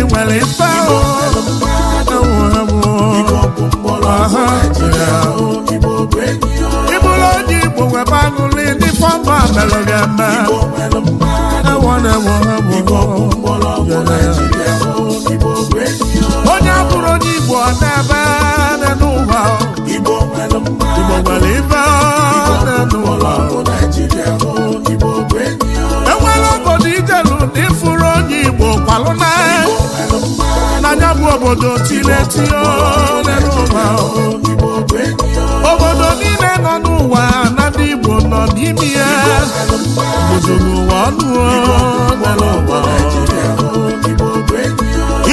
ndị nwere ife ịbụrụ onye igbo webe aṅụlị ndị fọmba mere gị eme onye bụrụ onye igbo ọ na-ebe n'ụwa igbo nwere ife n'ụwa igbo kwalụ n'anya bụ obodo tiletio n'ụwa obodo niile nọ n'ụwa na ndị igbo nọ n'ime ya obodo n'ụwa ọnụ n'ụwa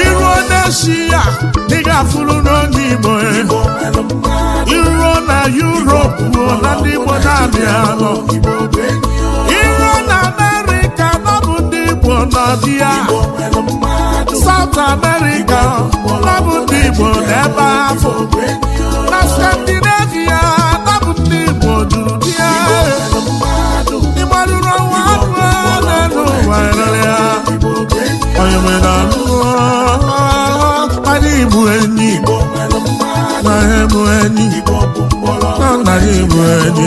iruo n'eshi ya dị ga-afụrụ n'onye igbo e. iruo na yuropu na ndị igbo na-abịa igbo n'ọdị South America nabụ ndị igbo n'ebe ahụ na Scandinavia nabụ ndị igbo n'ụdị ya ịgbarụrụ ọnwa abụ na ụwa rere ya onye nwere anụkpara igbo enyi na bụ enyi na nna bụ enyi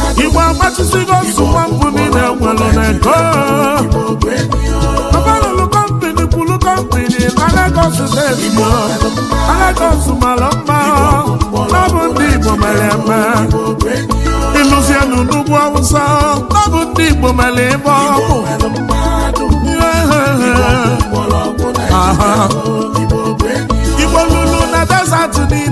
amachisigo nsogbu mbụ niile nwere n'ego gọvanọ kọmpini kwuru kọmpini na Lagos steeti Lagos mara mma ọ ndị Igbo mere n'ugwu Awụsa ndị Igbo mere ịbọ Igbo lulu na desert niile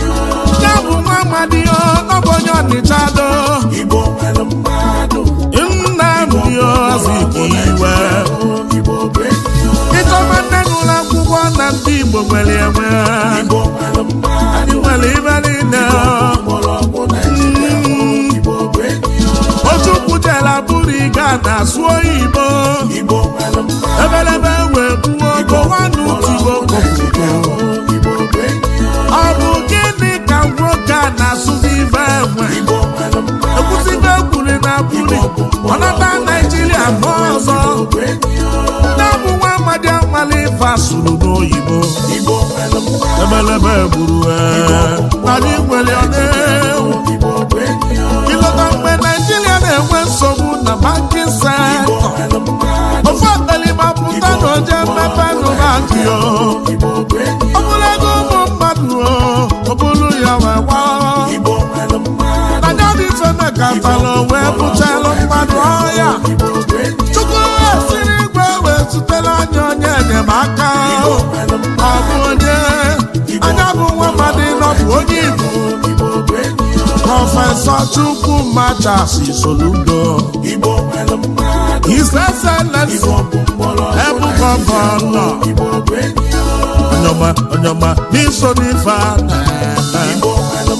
mmadụ ihe ọbụ onye ọnịcha do nna mbiozkiwe ịchọba Igbo nwere enwe anyị nwere nwa ekwusigo na buli ọnata naijiria nọ ọzọ nne bụ nwa amali n'oyibo ebelebe ewu Ịlọta mgbe naijiria na-enwe nsogbu na bankin ofe na ọ ego ụmụ mmadụ ọ bụrụ ya wee agatalụ wee bụchalụ mmadụ ọhịa chukwu siri igwe wee zutela anya onye enyemaka o. bụ onye anya bụ nwa mmadụ nọbụ onye igbo prọfesọ chukwumacha soludo his excellence ebu gọvanọ onye ọma n'iso n'ife ana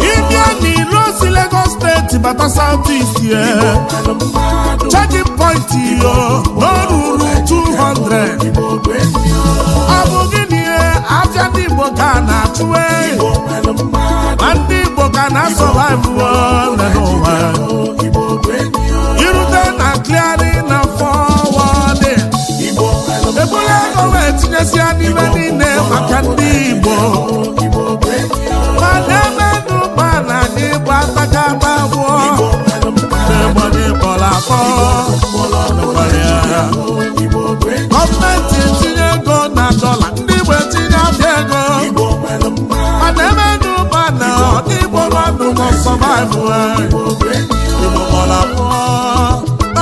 ịbịa n'ilo si Lagos steeti bata South East ya checking point yo n'ọrụrụ 200 ọ bụ gịnị afịa ndị Igbo ka na-achụwe ma ndị Igbo ka na-asọvaivu n'ụwa afọ gọọmenti tinye ego na dọla ndị Igbo tinye abịa ego mana eme n'ụba na ndị Igbo mmadụ nọ sọvaịvụ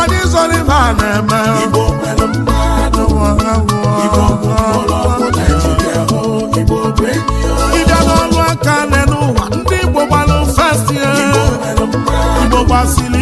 anyị zọrọ ibe a na-eme ịbịa n'ọrụ aka n'ụwa ndị Igbo gbalụ festi Igbo gbasiri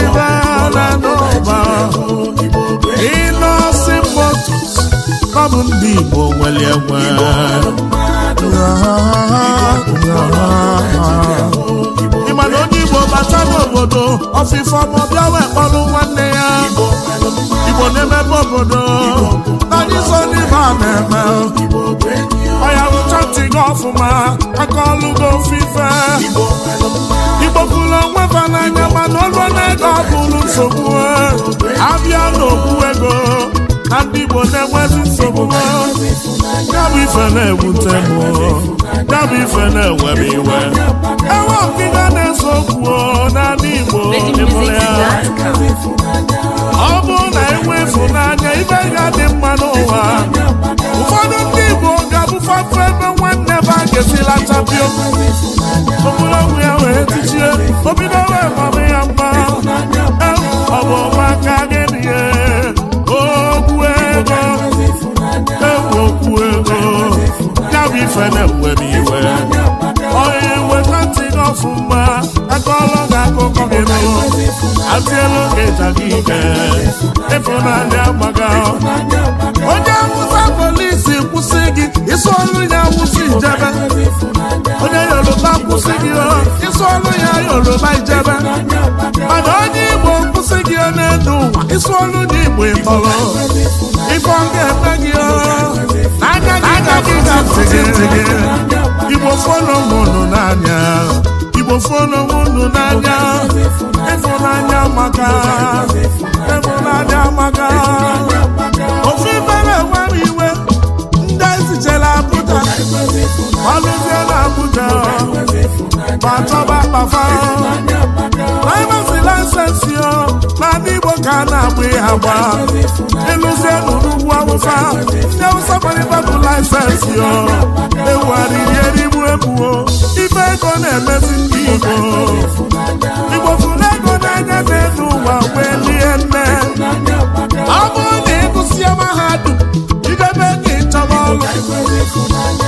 ọ bụ ndị Igbo nwere egbe ị ma onye Igbo bata n'obodo ọfịfọ ma ọ bịa wee kpọrụ nwanne ya Igbo na-emebe obodo naanị so ndị ibe a na-eme ọya rụcha ntị gị ọfụma aka ọlụgo gị ofife Igbo kwuru onwe ba n'anya mana ọlụ na-ego ọ bụrụ nsogbu abịa n'okwu ego Igbo na-enwezi nsogbu ya bụ ife na-ewute m ya ife na-ewere iwe enwe ọkịga na-ese okwu n'ala Igbo ịbụrụ ya ọ bụrụ na enwe ịfụnanya ibe ga-adị mma n'ụwa ụfọdụ ndị Igbo ga-abụfapụ ebe nwanne ba ga-esila chapio okpụrụogwụ ya wee tichie obido wee mama ya mma ọ bụ ọmaka ya bụ ife na-ewe m iwe onye weta ntị ọfụma akọlọ gị akụkọ gị nụrụ atịelu gị ịja gị ike ịfụnanya gbaga onye awụsa polisi kwụsị gị isu ọrụ ya awụsa ijebe onye yoruba kwụsị gị ọrụ ya yoruba ijebe mana onye igbo kwụsị gị n'elu ụwa ọrụ na igbo ịtọrọ ọ igbo fọlọmụ nụ n'anya igbo fọlọmụ nụ n'anya ịfụnanya maka ịfụnanya maka ofe mere nwere iwe ndị ezijela abụja malụzie na abụja ma chọba kpafa laịmasi laịsensị n'ala igbo ka a na-agba ya agba ịlụzie n'ụlọ ugwu awụsa ndị awụsa kparịta laịsensị ewugharịrị erigbu ebuo ife ego na-emezi ndị Igbo Igbo fụrụ ego n'anya n'elu ụwa wee lie nne ọ bụrụ na ha mahadum idebe ka ịchọba ọrụ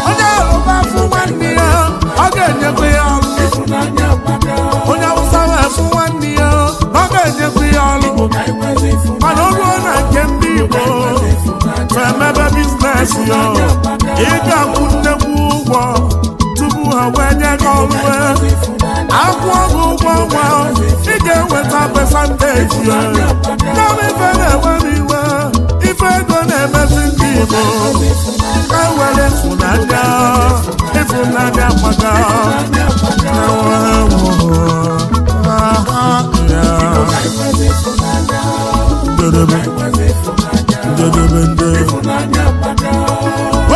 advantage ife na-enwe m iwe ife ego na-emezi ndị Igbo ka were ịfụnanya ịfụnanya maka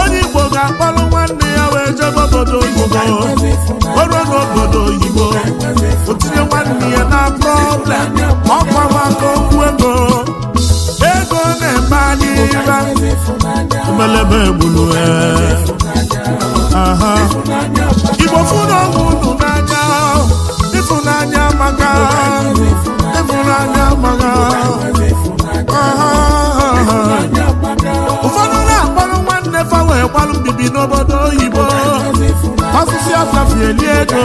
onye Igbo ga-akpọrọ nwanne ya wee jebe obodo oyibo n'obodo oyibo otinye ihe na problem ọkwawa ka okwu ego ego na-eme anyị ira mbelebe gburu igbo fụrụ ọgwụ unu n'anya ịfụnanya maka ịfụnanya maka ụfọdụ na-akpọrọ nwanne fa wee gbalụ mbibi n'obodo oyibo ọsụsụ ọsafie lie ego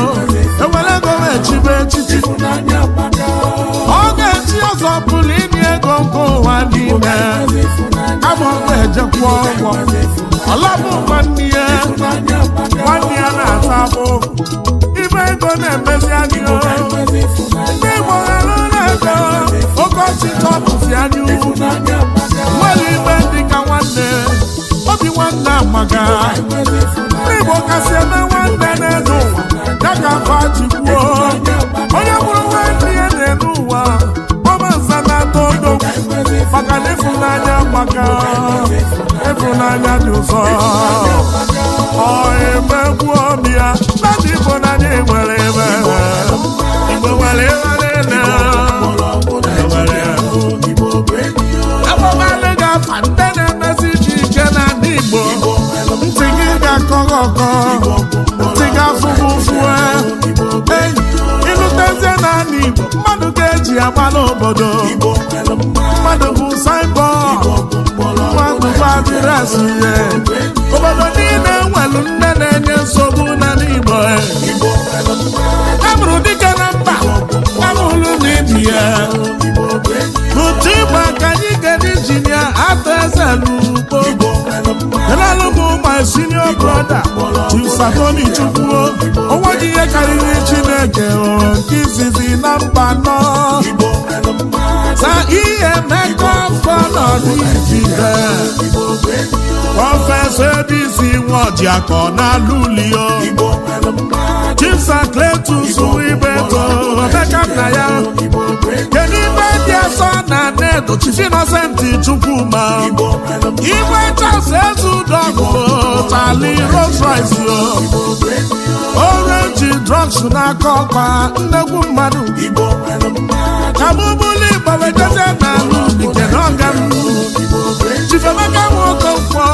egwu amụkwa ejekwuo ụgwọ ọlọbụkwa nne nwanne ya na-ata abụ ibe ego na-emezi ndị Igbo na-ego nwere dịka nwanne nwanne amaga ndị Igbo kasị amaka ịfụnanya dị ụzọ ọ na obi ọbịa na ịfụnanya nwere ebe igbo nwere ebe niile e ga-afa ndị na iche iche na ndị igbo ntị gị ga-akọ gị ọkọ ji agba n'obodo mmadụ bụ signboard mmadụ bụ adịrasị ihe obodo niile nwelu nne na-enye nsogbu n'ala Igbo amụrụ dike na mba amụrụ n'ibia n'ụtụ igba ka anyị gara injinia atọ eze n'ugbo elalụbụ my senior brother Chisakoni Chukwuo onwe gị ihe karịrị Chineke nke izizi na mba nọ ọnọdụ Naịjirịa prọfesọ Ebisi Nwojiakọ n'Alulio Chief Sakletus Ibeto Emeka nna ya Chief Innocent Chukwuma igwe Charles Ezeudogu tali Rolls Orenji orange na n'aka ọkpa nnegwu mmadụ ka Igbo weteze n'ala ubi kenaọga Chief Emeka Nwokonkwọ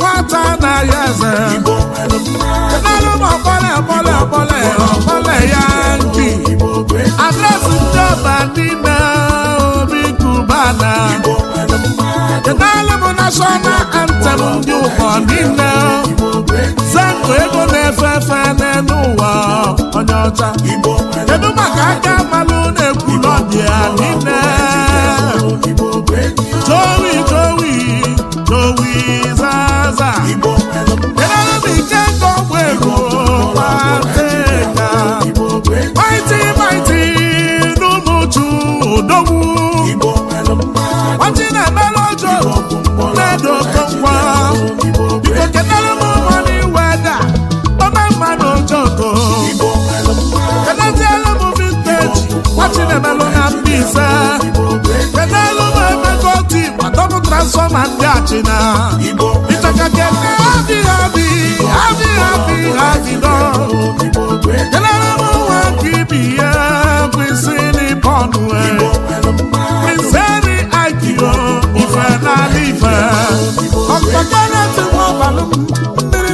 nwata na-ayọ eze kenarụ m ọkpọle ọkpọle ọkpọle ọkpọle ya nki adresị ndị ọba niile mana kedụala m national anthem ndị ụwa niile zango ego na-efe efe n'elu ụwa onye ọcha kedu maka aka malụ na ndị a ya niile jowi jowi jowi zaza kedụala m ike nke ọgwụ ego na. maịtị maiti n'ụmụ uchu odogwu china ịchọkake adịghị adị adịghị adịghị adịdọ jelara m nwa ka ibi ya kwesị ife n'ala ife ọkpọkọrọtụmọbalụ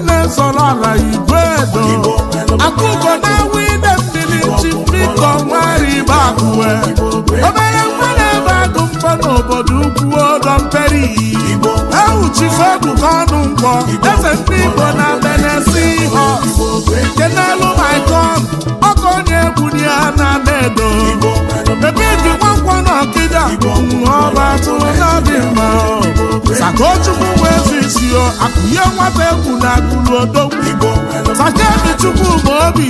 na-ezọrọ ala igwe edo akụkọ na-awụ ide mmiri chi biko nwari bakụwe chifedu ka ọnụ nkwọ eze ndị igbo na benesi ihe nke n'elu maikon ọkụ onye egwu ya na-ada edo ebe eji nwankwọ na ọkịda ọba tụrụ n'obi mma sakochukwu wee zisio akụnye nwata egwu na akụlu odogwu sakebi chukwu ma obi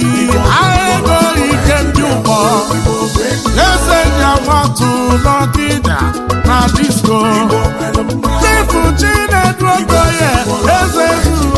agha ego nke ndị ụkpọ eze ya nwatụ na disko chifu chinedu eze zuru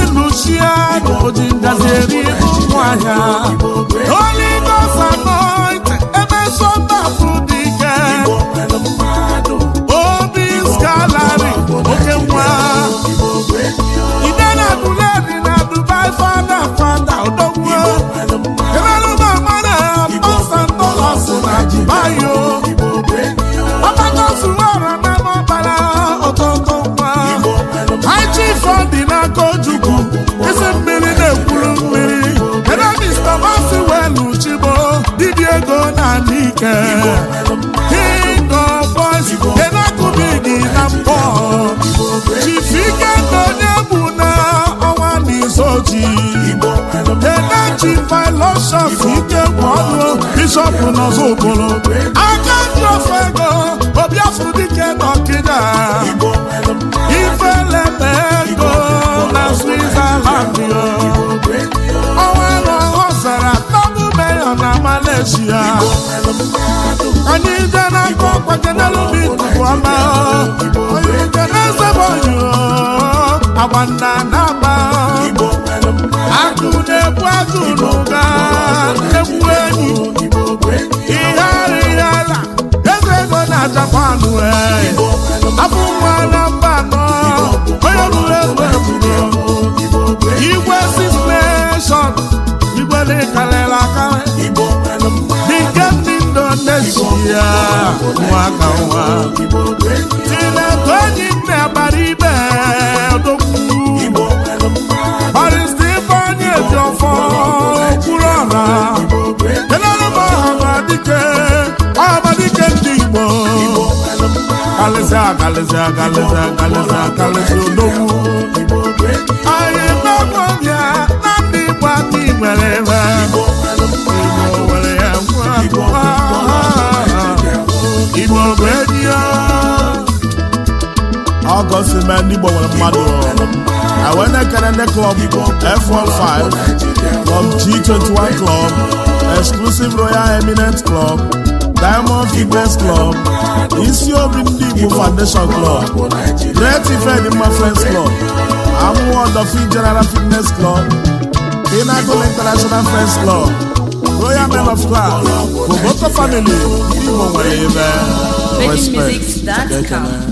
Oshia na ji ngazi eri ego ụmụ dị ike obi skalari oke nwa ike ịkọbọzi enakụbidi na mbọ na eneji filosof ike bụ ọnụ bishọpụ n'ọzọ okporo aka ndị ofe ego obiafụ dike na ọkịda ego na switzerland na Malaysia onye ije na-akọ ọkpajenelụbi tupu ọma onye ije na-ezebe oyi agba nna na-agba agụ na-ebu agụ n'ụga egwu enyi ihe ara ihe ala ego ego na Japan wee afọ ụmụ anọ mba anọ onye bụrụ egbe nwaka nwa tineke onye nne agbara ibe eji ọfọ ndị igbo ndị ọ sị mee ndị Igbo nwere mmadụ Awenekere ndị Club F15 Club G21 Club Exclusive Royal Eminent Club Diamond Fitness Club Isi Obi Ndị Igbo Foundation Club Great Ifedimma Friends Club Amụwa Odofin General Fitness Club Pinnacle International Friends Club Royal Men of Class Koboko Family Ndị Igbo nwere ebe respect